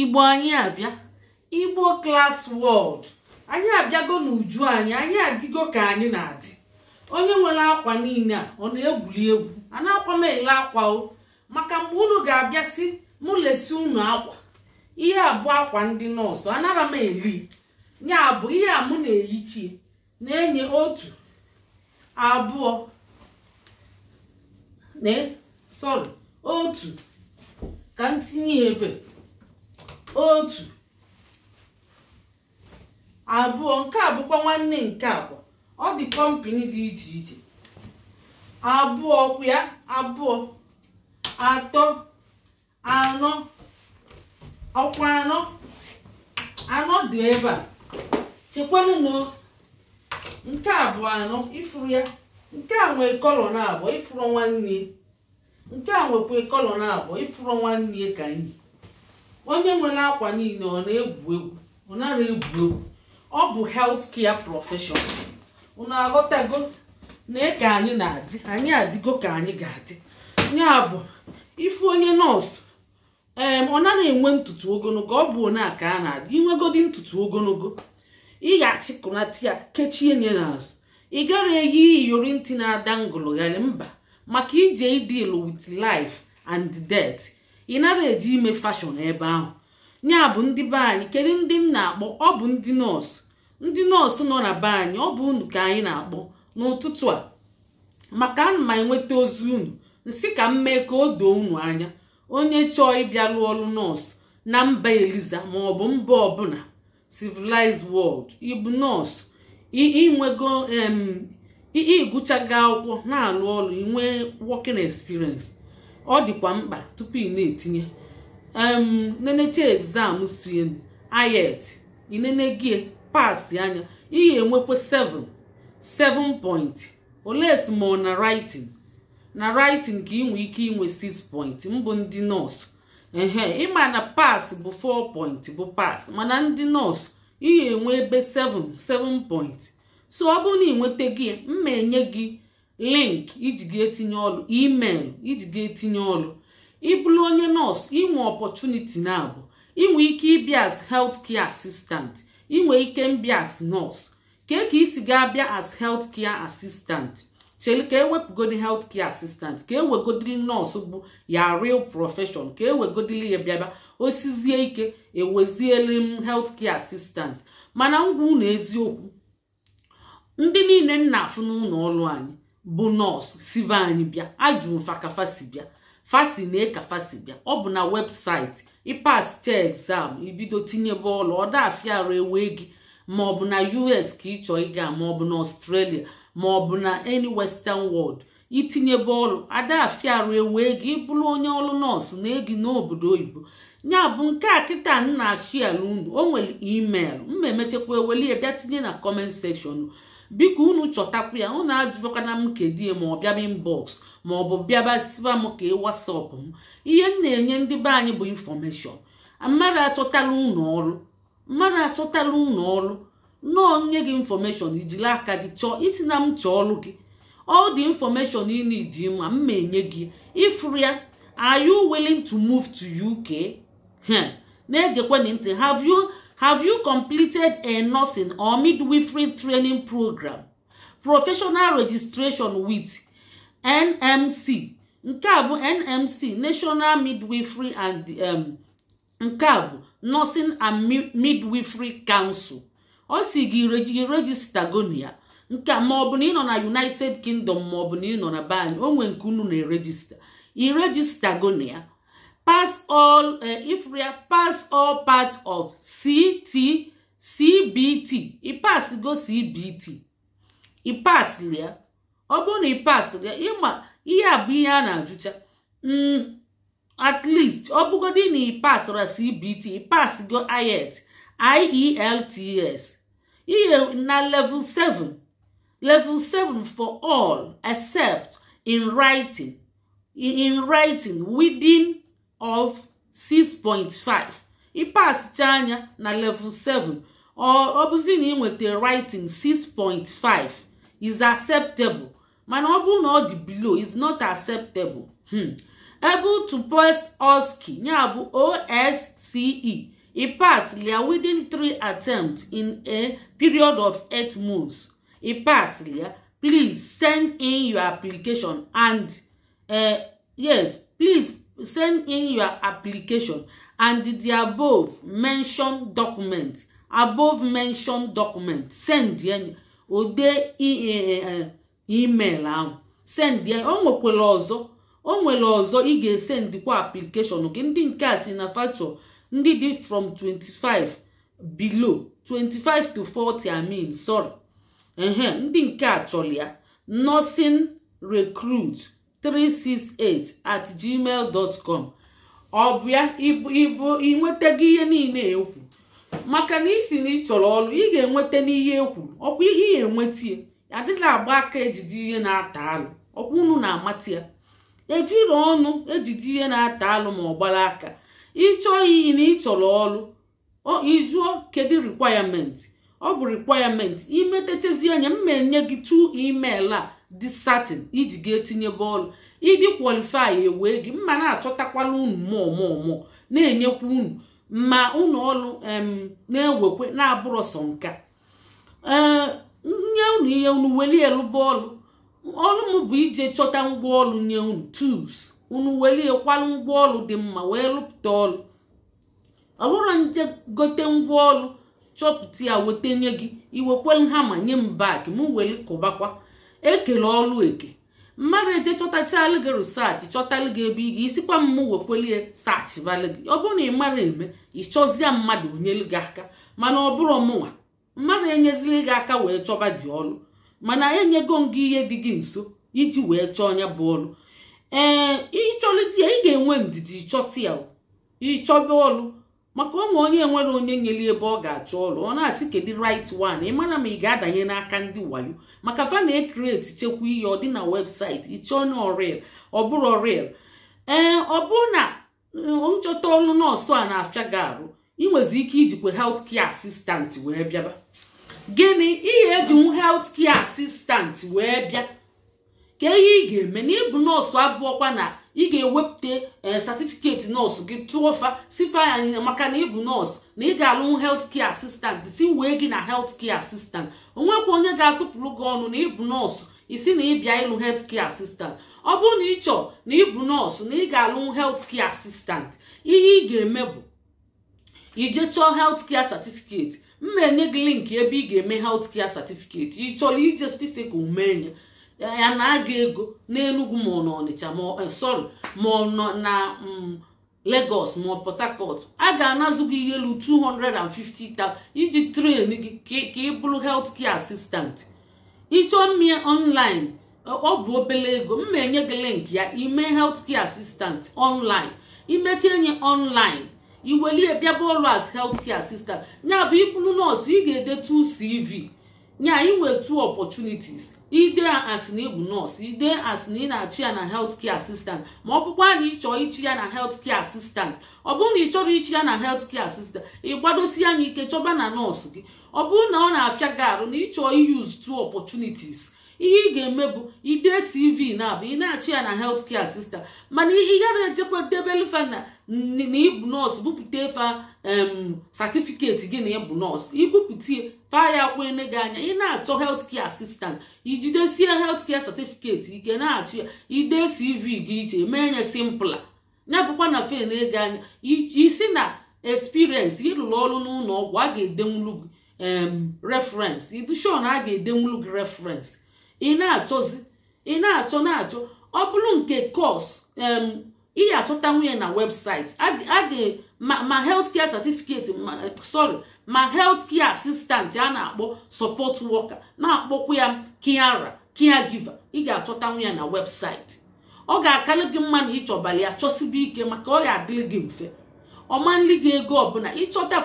igbo anyị abịa igbo klas wọld anyị abịago n'uju anyị anyị adịgo ka anyị na-adị onye nwere akwa niile a ọ na-egwuri egwu a na-akwa m ele akwa o maka mgbe unu ga-abịa si mụ lesi unu akwa ihe abụọ akwa ndị nọọsụ anara m eri nya abụ ihe a mụ na-eyichi na-enye otu abụọ na otu ka m tinye ebe otu abụọ nke a bụkwa nwanne nke abụọ ọ dị kọmpini dị iche iche abụọ ọkụ ya abụọ atọ anọ ọkwa anọ anọ dị ebe a chekwanụ na nke abụọ anọ ifuru ya nke a nwee kọlọ na abụọ ifuru nwanne nke a nwekwa kọlọ na abụọ ifuru nwanne ka anyị onye nwere akwa niile ọ na-egwu egwu ọ nara egwu egwu ọ bụ health kia prọfeshọn ụnụ aghọtago na e ka anyị na-adị anyị adịgo ka anyị ga-adị ya bụ ifu onye nọọsụ ee ọ nara enwe ntutu ogologo ọ bụ onye a ka a na-adị inwegodi ntutu ogologo ị ga-achịkụnata ya kechie nye n'azụ ị gara eyi iyori ntị na-ada ngụlụgharị mba maka ije ịdịlụ with life and death ị nara eji ime fashọn ebe ahụ ya bụ ndị be anyị kedu ndị m na-akpọ ọ bụ ndị nọọsụ ndị nọọsụ nọ na be anyị ọ bụ unu ka anyị na-akpọ n'ụtụtụ a maka ana m enweta ozi unu nsị ka m mee ka o doo unu anya onye chọọ ịbịa lụọ ọrụ nọọsụ na mba eliza ma ọ bụ mba ọbụla civilized world ịbụ nọọsụ ịnwego ịgụchago akwụkwọ na-alụ ọrụ inwe working experience ọ dịkwa mkpa tupu ị na-etinye nenecha egzam sien ayet inenegie pasị anya ihe enwekwa 7 7 point oles ma na writing na writing ka nwee ike inwe 6 point mbụ ndị nọọsụ ehe ịma na pas bụ 4 point bụ pas mana ndị nọọsụ ihe enwe ebe 7 7 point so ọ bụrụ na ị nweta mma enye gị link iji ga etinye ọlụ email iji ga etinye ọlụ ịbụrụ onye nọọsụ inwe ọpọchuniti na abụ inwe ike ịbịa as health care assistant inwe ike mbịa as nọọsụ kee ka isi gaa abịa as health care assistant chere ka ewepụgodi health care assistant ka ewegodiri nọọsụ bụ ya real profession ka ewegodili ya bịaba osizie ike eweziele m health care assistant mana ngwa unu eziokwu ndị niile nna afụ n'ụlọ ọrụ anyị bụ nọọsụ sibe anyị bịa ajụrụ fakafasi bịa fasi na ekafasi bịa ọ bụ na webụsaịtị ịpas chee ibido tinyebe bọọlụ ọda afiarụ ewe gị maọbụ na us ka ị chọọ ịga maọbụ na ọstrelia maọbụ na any western world itinyebe bọọlụ ada afiarụ ewe gị ịbụrụ onye ọlụ nọọsụ na egi n'obodo oyibo ya bụ nke a kịta nna na unu o nwere email mma emechekwa eweli bịa tinye na kọment sekshọn biko unu chọtakwu ya unu ajụbakana m kedie ma ọ bịaba inbọks ma ọ bụ m ka ị wasap m ihe m na-enye ndị be anyị bụ infọmeshọn mmadụ achọtala unu ọrụ mmadụ achọtala unu ọrụ nọọ nye gị infọmeshọn ijiri aka gị chọọ isi na m chọọ ọrụ gị ọ dị infọmeshọn ị need ma mma enye gị ịfụrụ ya are you willing to move to UK? na-egekwa ntị have you Have you completed a nursing or midwifery training program? Professional registration with NMC. Nke a bụ NMC, National Midwifery and um, nke a bụ Nursing and Midwifery Council. Ọ si gị registagonia nke a maọbụ na ị nọ na United Kingdom maọbụ na ị nọ na be anyị o nwee nke unu na-erejista. I registagonia pass all uh, eh, Ephraim pass all parts of CT CBT he pass go CBT he pass lia ọ bụrụ na he pass lia ịma ihe a bụ ihe a na-ajụcha mm, at least ọ bụgodị na he passra CBT he pass go IELTS e IELTS ihe eh, na level 7 level 7 for all except in writing in, in writing within of 6.5 ịpasicha anya na level 7 ọ bụzi na ị nweta writing 6.5 is acceptable mana ọ bụrụ na ọ dị below is not acceptable able to pass OSCE ya bụ OSCE e pass lia within three attempts in a period of eight months e pass lia please send in your application and uh, yes please send in your application and the above mentioned document above mentioned document send ya ode e, e, e, email ahụ send ya o nwekwara ọzọ o nwere ọzọ ị ga-esendikwa application gị ndị nke a si na factor ndị dị from 25 below 25 to 40 I mean sorry ndị nke a chọrọ ya nursing recruit 368 at gmail dot com ọ bụ ya ịbụ ịnwetago ihe niile ekwu maka na isi na ị chọrọ ọrụ ị ga-enweta n'ihe ekwu ọkwa ihe ị ga-enweta ya adịla agba aka ejide ihe na-ata alụ ọkwa unu na-amata ya ejiri ọnụ ejide ihe na-ata alụ ma ọ gbara aka ịchọọ iyi na ịchọrọ ọrụ ịjụọ kedu requirement ọ bụ requirement imetechazi anya m ma enye gị tu email a dị iji ga etinye bọọlụ ịdị kwalifai ewee gị mma na-achọtakwala unu mụọ mụọ na-enyekwa unu ma unu ọrụ na-ewekwe na-abụrụ sọ nka nye unu ihe unu weli bọọlụ ọlụ m bụ ije chọta ngwaọlụ nye unu tus unu weli ekwalụ ngwaọlụ dị mma wee lụpụta ọlụ ọ bụrụ nje gote ngwaọlụ chọpụta ya weta nye gị iwekwelu hama nye m bak m weli kụbakwa ekele ọlụ eke mmadụ eje chọtachalụ gị risaachị chọtalụ gị ebe ị ga isikwa mmụ wekwelie saachịbalụ gị ọ bụrụ na ị mara eme ịchọzie mmadụ onyelu gị aka mana ọ bụrụ mụnwa mmadụ enyezili gị aka wee chọba dị ọlụ mana enyego m gị ihe dị gị nso iji wee chọọ onye bụ ọlụ ee ịchọlụ ya ị ga-enwe ndidi ịchọta ya ịchọba ọlụ maka onwe onye nwere onye nyeli ebe ọ ga-achọ ọrụ ọ na-asị kedu right one ị mara ma ị ga-adanye n'aka ndị wayo maka vana ekreti chekwa ihe ọ dị na webụsaịtị ịchọọ na orel ọ bụrụ orel ee ọ bụrụ na eh, nchọta ọrụ nọọsụ a na-afịa gị arụ ị nwezi ike ijikwa helt kia asistant wee bịaba gịnị ihe ejinwu helt kia asistant wee bịa ka ihe ị ga-eme na ịbụ nọọsụ abụọkwa na ị ga-ewepụta satifiketi eh, nọọsụ gị tụọ fa sifa ya maka na ịbụ nọọsụ na ị ga-alụ helt kia asistant si wee gị na helt kia asistant onwekwa onye ga-atụpụrụ gị ọnụ na ịbụ nọọsụ isi na ịbịa ịlụ helt kia asistant ọ bụrụ na ị chọọ na ịbụ nọọsụ na ị ga-alụ helt kia asistant ihe ị ga-eme bụ ije chọọ helt kia satifiketi mma enye gị linki ebe ị ga-eme helt kia satifiketi ị chọrọ ije fisikal mee ya ya na-aga ego n'enugwu ma ọ eh, sọrị ma ọ nọ na mm, Lagos ma ọ Port Harcourt a ga-anazụ gị ihe elu 250,000 iji tren gị ka ị bụrụ health care assistant ịchọọ mmịa online eh, ọ bụ obere ego mma enye gị link ya ime health care assistant online imechi enye online iwelie bịaba ọrụ as health care assistant ya bụ ịbụrụ nọọsụ ị ga-ede 2 CV nye anyị 2 two opportunities ide asị na ịbụ nọọsụ ide asị na ị na-achụ ya na health care assistant ma ọ bụkwa na ịchọọ ichi ya na health care assistant ọ bụrụ na ị chọrọ ichi ya na health care assistant ị gbadosi anya ike chọba na nọọsụ gị ọ bụrụ na ọ na-afịa gị arụ na ịchọọ iyuzu two opportunities ihe ị ga-eme bụ ide cv na abụ ị na-achị ya na helt kia sista mana ị gara ejekwa debelfe na ịbụ nọọsụ bupụta fa satifiketi gị na ịbụ nọọsụ ibupute fa ya kwene gị anya ị na-achọ helt kia asistant ijidesie helt kia satifiketi ike na-achị ya ide cv gị iche mee nye simpla ya bụkwa na fen ego anya isi na experience ịrụrụ ọrụ n'ụlọ ọgwụ a ga-edenwulu gị reference ịdụshọ a ga-edenwulu gị reference ị na-achọzi ị na-achọ na-achọ ọ bụrụ nke kọs ị achọta nwunye na webụsaịtị ma health care certificate sorry ma helt kia assistant a na-akpọ sọpọt worker na-akpọkwa ya kiara kia giva ị ga achọta ya na webụsaịtị ọ ga-akarị gị mma na ịchọbara ya chọsibe ike maka ọ ga-adịrị gị mfe ọmanli gị ego ọbụla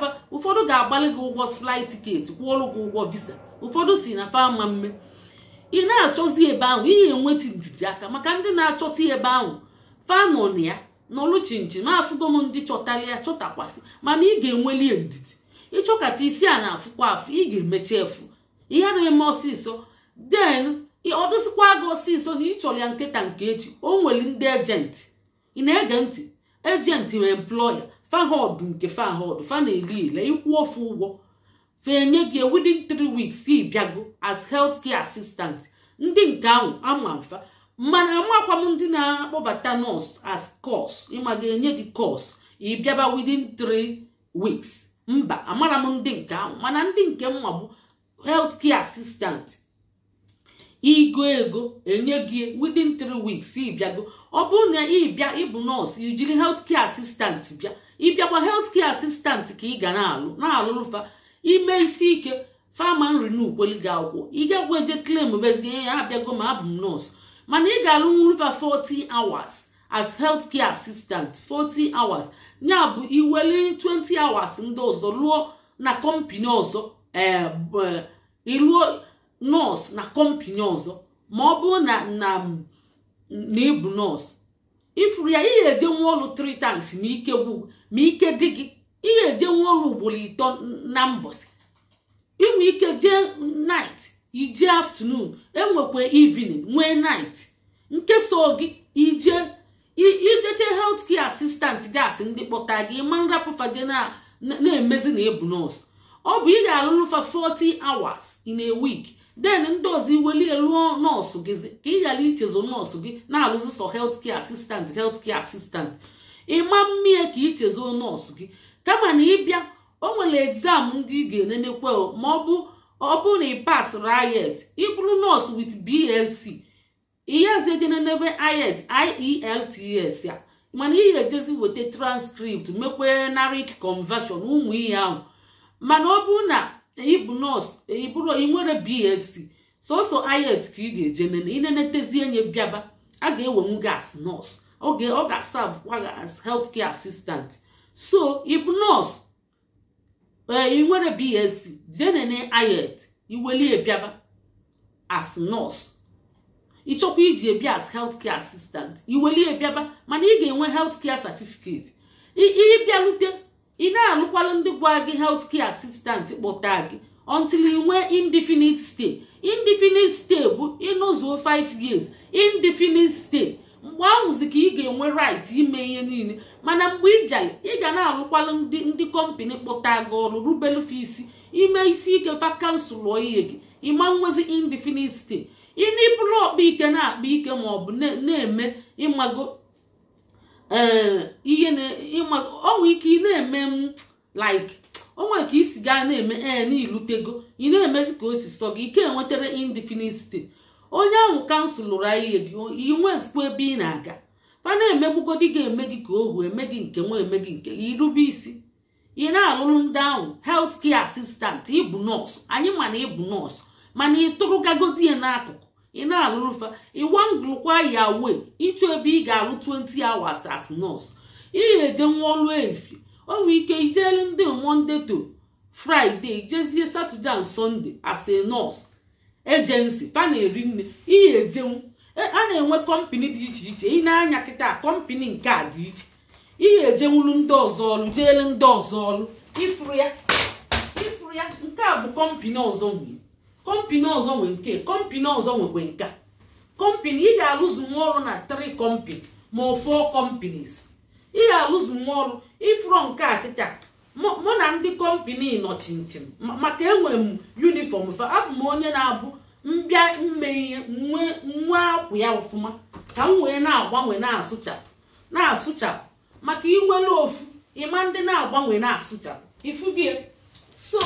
fa ụfọdụ ga-agbalị gị ụgwọ flight tiketi kwụọrụ gị ụgwọ visa ụfọdụ si na fa ama mme ị na-achọzi ebe ahụ ihe enweti ndidi aka maka ndị na-achọta ebe ahụ fanọ na ya nọlụ chinchi ma afụgo m ndị chọtara ya chọtakwasị mana ị ga-enweli ndidi ịchọkata isi a na-afụkwa afụ ị ga-emechi efu ihe na-eme ọsịsọ den ọdụsịkwa gị ọsịsọ na ịchọrọ ya nkịta nke echi o nwere ndị ejenti ị na-ege ntị ejenti ma employa fahod nke fahod fa na-eli ele ịkwụ ofu ụgwọ fa enye gị within three weeks ị bịago as health care assistant ndị nke ahụ ama mfa mana amakwa m ndị na-akpọbata nọọsụ as course ịma ga-enye gị course ị bịaba within three weeks mba amara m ndị nke ahụ mana ndị nke mma bụ health care assistant igo ego enye gị within three weeks ịbịago ọ bụrụ na ịbịa ịbụ nọọsụ ijiri health care assistant bịa ịbịakwa health care assistant ka ị ga na-alụ na-alụlụfa ime isi ike fama nri na gị akwụkwọ ị gagwa eje klem bezinye ya abịago ma abụ m nọọsụ mana ị ga-alụ nwurufa 40 hours as health care assistant 40 hours ya bụ iweli 20 hours ndị ọzọ lụọ na kọmpini ọzọ ịlụọ eh, eh, nọọsụ na kọmpini ọzọ ma ọ bụrụ na na ịbụ nọọsụ ifuru ya ị ga-eje nwa ọlụ 3 times ma ike gwụ ma ike dị gị na-eje nwa ọrụ ugboro ito na mbọsị inwe ike jee nit ije aftanun enwekwa evening nwee nit nkesa gị ije ijeche health care assistant gasị ndị kpọta gị ma nrapụfaje na-emezi na ebu nọọsụ ọ bụ ị ga-alụrụ fa 40 hours in a week den ndị ọzọ iwelie lụọ nọọsụ gị ka ị ghara ichezo nọọsụ gị na-alụzi sọ health care asistant health care assistant ịma mmie ka ichezo nọọsụ gị kama na ịbịa o nwere exam ndị ị ga-enenekwe ma ọ bụ na ị pas riet ịbụrụ nọọsụ with BSc ihezejenenebe iet IELTS e ya mana ị ga-ejezi weta transkript mekwee narik conversion ụmụ ihe ahụ mana ọ bụ na ịbụ nọọsụ ịbụrụ ị nwere BSc sọsọ iet ka ị ga-eje nene inenetezie nye bịaba a ga-ewenwu gị as nọọsụ ọ ga-asa bụkwa as health care assistant so ibnos ị nwere bsc jenene ayet iweli ebiaba as nurse ịchọkwa iji ebia as healthcare assistant iweli ebiaba mana ị ga-enwe healthcare certificate ịbịalute ị na-alụkwalụ ndị gwa gị healthcare assistant kpọta gị until ị nwee indefinite stay indefinite stay bụ ịnọzuo 5 years indefinite stay mgbe ahụzi ka ị ga-enwe right ime ihe niile mana mgbe ị bịara ị ga na-arụkwalụ ndị ndị kọmpani kpọta gị ọrụ rubelu fa isi ime isi ike vakansi kansụl ihe gị ịma nwezi indefinite stay ịna ịbụrụ ọkpa ike na-akpa ike ma ọ bụ na-eme ịmago eh, ihe ọnwe ike ị na-eme m like onwe ka isi gaa na-eme ee eh, n'ilutego ị na-emezi ka o si sọ gị ike enwetara indefinite stay onye ahụ kansụl lụrụ anyị inwezikwa ebe ị na-aga fa emegbugodi ga-eme gị ka ohu eme gị nke nwa eme gị nke irube isi ị na-alụrụ ndị ahụ helt kie asistant ịbụ nọọsụ anyị mana ịbụ nọọsụ mana ị tụrụgagodi ya n'akụkụ ị na-alụrụ fa ịwangụlụkwa ya wee ịchụ ebe ị ga-alụ 20 awas as nọọsụ ị eje nwa ọlụ efi o nwere ike ijele ndị monde to fraịde jezie satọde na sọnde as a nọọsụ ejensi pa nne ihe ejenwu e, a na-enwe kọmpini dị iche iche ị na-anya kịta kọmpini nke a dị iche ihe ejenwulu ndị ọzọ ọrụ jeele ndị ọzọ ọrụ ifuru ya ifuru ya nke a bụ kọmpini ọzọ nwee kọmpini ọzọ nwee nke kọmpini ọzọ nwekwe nke kọmpini ị ga-alụzu nwa ọrụ na tri kọmpini ma ọ fọ ị ga-alụzu nwa ọrụ ifuru nke a kịta mụ na ndị kọmpini nọ chinchin maka enwe m yunifọm abụ m onye na-abụ mbịa mme ihe nwe akwụ ya ọfụma ka m wee na-agbanwe na-asụchapụ na-asụchapụ maka inwere ofu ịma ndị na-agbanwe na-asụchapụ ifugi e. so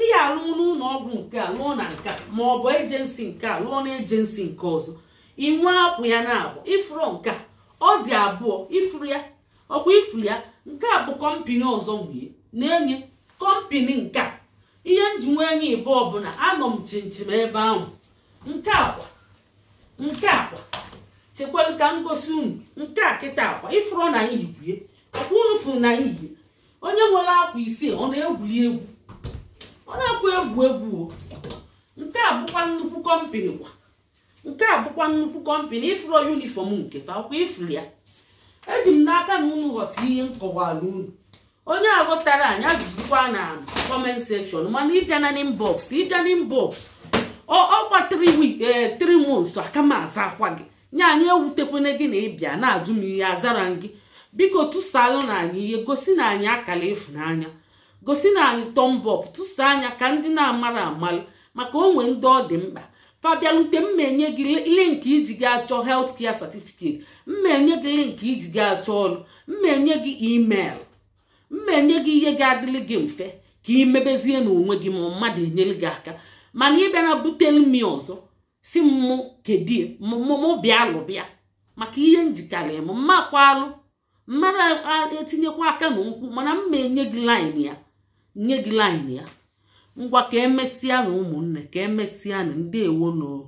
ị ga-alụ n'ụlọ ọgwụ nke a lụọ na nke ma ọ bụ ejensi nke a lụọ na ejensi nke ọzọ inwe akwụ ya na agba ifuru nke a ọ dị abụọ ifuru ya ọkwa ifuru ya nke a bụ kọmpini ọzọ nwunye na-enye kọmpini nke a ihe m ji nwee anya ịbụọ bụ anọ m chinchin ebe ahụ nke akwa nke akwa chekwala ka m gosi unu nke a kịta akwa ịfụrụ na ihe yibie ọkwa unu fụrụ na anyị onye nwere akwa isii ọ na-egwuri egwu ọ na-akwa egwu egwu nke a bụkwa nnukwu kọmpini kwa nke a bụkwa nnukwu kọmpini ịfụrụ yunifọm nke fa ịfụrụ ya eji m n'aka na unu ghọta ihe m kọwara unu onye agụtara anyị ajụzikwa na comment section mana ịbịa na inbox ịbịa na inbox ọkwa 3 week 3 eh, months aka m aza akwa gị nye anyị ewutekwene gị na ịbịa na-ajụ m ihe azara gị biko tụsalụ na anyị ihe gosi na anyị akala efu gosi na anyị tọmbọp tụsa anya ka ndị na-amara amalụ maka onwe ndị ọ dị mkpa fabialute mma enye gị link iji gị achọ health care certificate mma enye gị link iji gị achọ ọrụ mma enye gị email mma enye gị ihe ga-adịlị gị mfe ka ị mebezie n'onwe gị ma mmadụ enyere gị aka mana ị bịa na butere ọzọ si mụ kedie mụmụ bịa lụbịa maka ihe njikarị m mma alụ mmadụ etinyekwa aka na nkwụ mana mma enye gị laịn ya nye gị laịn ya ngwa ka emesịa na ụmụnne ka emesịa na ndị ewonoo